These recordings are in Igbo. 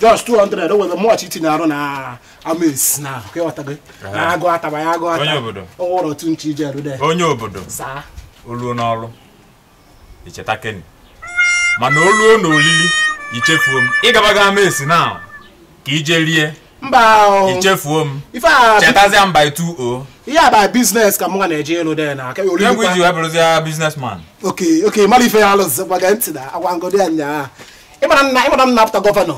just 200 o nwere mọchị itinye arụ na amaesi na gị na agụ ataba ya agụ ata ọwụrụ otu nche ije rude onye obodo oh, oluo n'ọrụ icheta keni mana oluo na olili ichefuo m ịgabago amaesi na ka ije rie mba ichefuo m chetazia m by 2o ihe a bụ biznes ka m ga na-eje elu de na egwu iji wee bụrụzi biznesman oke oke mara ife ya alụzị gbaga ntị na agwa ngodi anya nyaa ịmara nna ịmara m na gọvanọ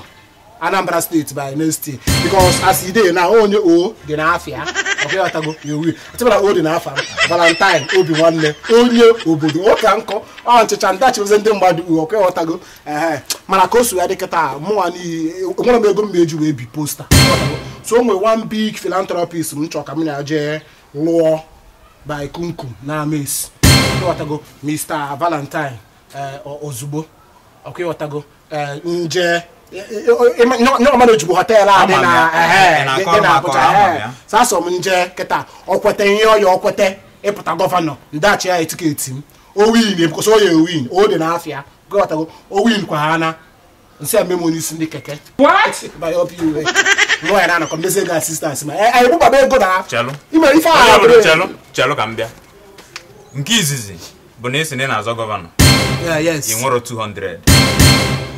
anambra state by next year because as e dey now onye o na dị n'afịa ọkọghọtago ewu atịbara o na n'afọ valentine obi nwanne onye obodo ụka nkọ ọ nchịcha ndachi ozi ndị mmadụ uwe ọkọghọtago ee mana ka o so ya dị kịta mụnwa nwere m ego m eji wee bi posta so o nwere one big philanthropist m chọọ ka m na jee lụọ by kunkum na ames ọkọghọtago mr valentine eh, ozugbo ọkọghọtago eh, nje ọmana ojigbo họteelụ adị na abụja sasọ m nje kịta ọkweta nye ọya ọkweta ịpụta gọvanọ ndachi ya etiketi m owin ebikosi oya owin o dị n'afịa owin kwa ha na nsị ememe n'isi ndị keke nwa na-anọkọ mmezi ka asistans ma anyị bụbaba ego na ime ife ahụ chelu ka nke izizi bụ na esi na-azọ gọvanọ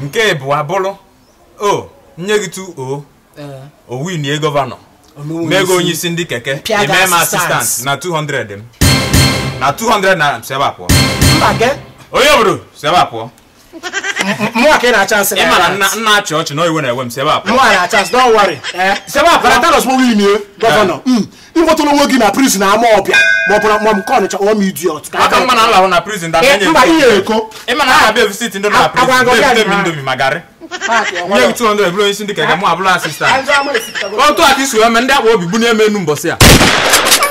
nke bụ o nye gị tu o owinie gọvanọ mee onye isi ndị keke emee m asistant na 200 m na 200 naira si ebe a pụọ onye obodo si ebe a pụọ ịmara nna achị ọchị na oyiwe na-ewe m si ebe a e. pụọ eh? eh. mm. ịkpọtụrụ nwe gị na prizin ama ọbịa ma ọ bụrụ ma m kọ nịcha ọwa m idi ọtụ aka mma na alahụ na prizin da na-enye eh, eko ịma na ha abịa visit ndị na prizin na-ebute m indomi ma garị nye gị 200 bụrụ onye isi ndị ka ga mụ abụrụ asistant otu aka isi mee ndị akpa obi bụ na-eme enu mbọsị a